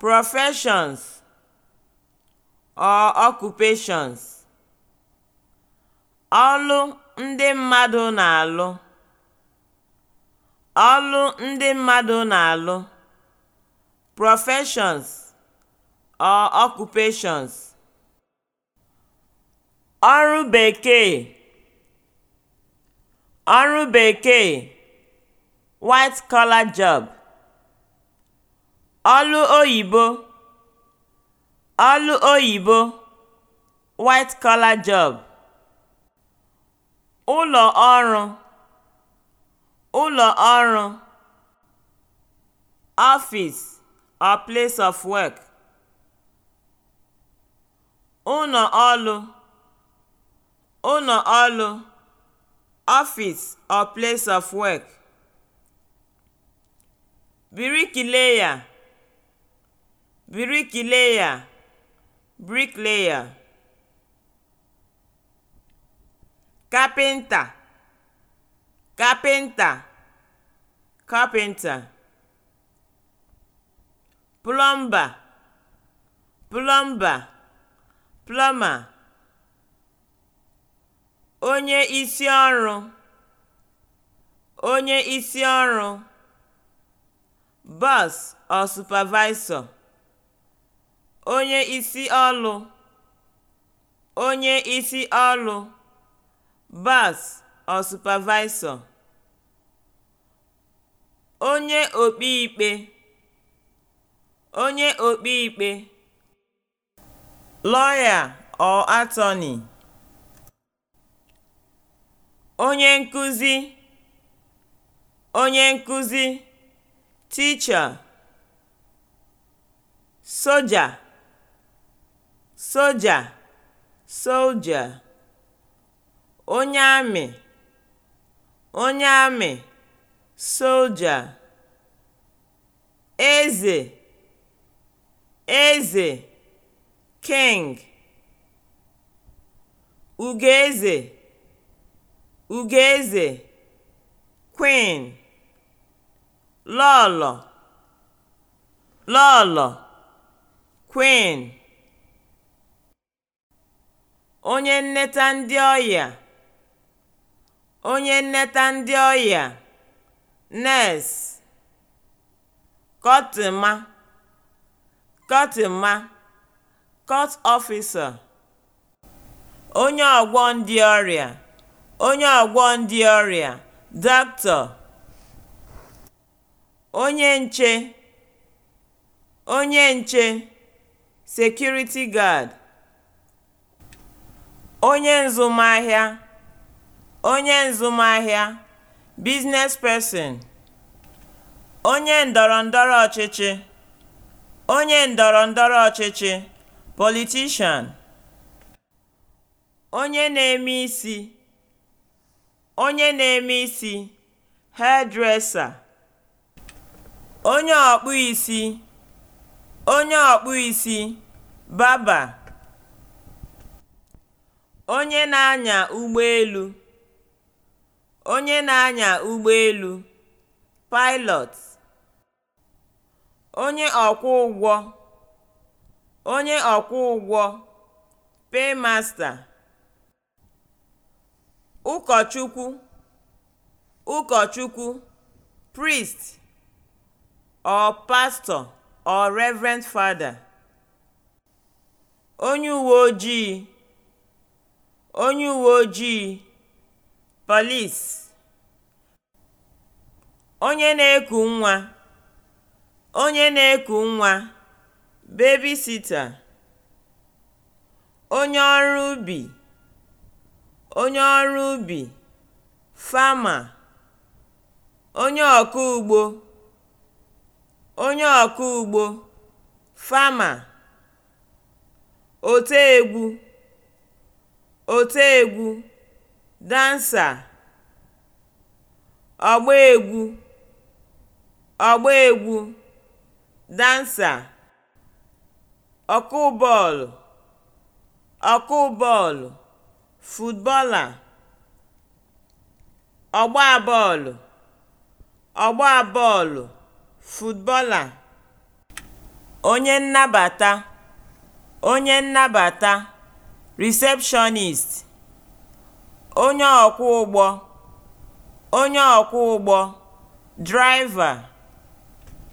professions or occupations ọlụ ndị mmadụ na-alụ ọlụ ndị mmadụ na-alụ professions or occupations ọrụ bekee ọrụ bekee white collar job ọlụ oyibo ọlụ oyibo white collar job ụlọ ọrụ ụlọ ọrụ office or place of work ụlọ ọrụ: ụlọ ọrụ: office or place of work birikileya bricklayer bricklayer carpenter carpenter carpenter plumber plumber plumber onye isi ọrụ onye isi ọrụ or supervisor onye isi ọlụ onye isi ọlụ boss or supervisor onye okpi ikpe onye okpi ikpe lawyer or attorney onye nkụzi onye nkụzi teacher soja soja, (soldier), onye amị (onye amị), soldier, eze (eze), king, ugeze (ugeze), queen, lọọlọ (lọọlọ), queen onye nneta ndị ọya onye nneta ndị ọya nurse kọtịma kọtịma court officer onye ọgwọ ndị ọrịa onye doctor onye nche onye nche security guard onye nzụmahịa onye nzụmahịa (business person), onye ndọrọndọrọ ọchịchị onye ndọrọndọrọ ọchịchị (politician), onye na-eme isi onye na-eme isi (hairdresser), onye ọkpụ isi onye ọkpụ isi (barber) onye na-anya ụgbọelu onye na-anya ụgbọelu (pilot) onye ọkwọ ụgwọ. onye ọkwọ ụgwọ (paymaster) ụkọchukwu ụkọchukwu (priest) or pastor or reverend father onye uwe ojii onye uwe ojii polis onye na-eku nwa onye na-eku nwa (babysitter), onye ọrụ ubi onye ọrụ ubi (farmer), onye ọkụ ugbo onye ọkụ ugbo ote egwu. otiegwu dansa ọgbaegwu ọgbaegwu dansa ọkụ bọọlụ ọkụ bọọlụ footballer ọgba bọọlụ ọgba bọọlụ footballer onye nnabata onye nnabata Receptionist Onye ọkwọ ụgbọ Onye ọkwọ ụgbọ driver